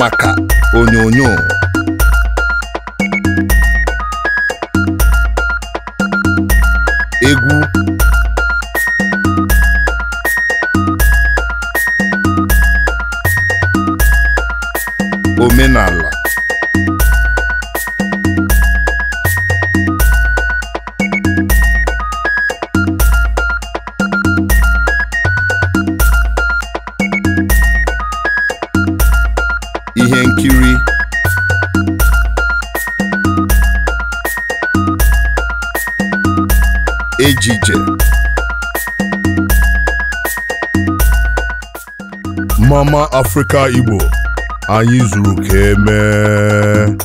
maka onyonyo egwu omenala ihe nkiri ejije mama afrịka igbo anyị zuru ka emee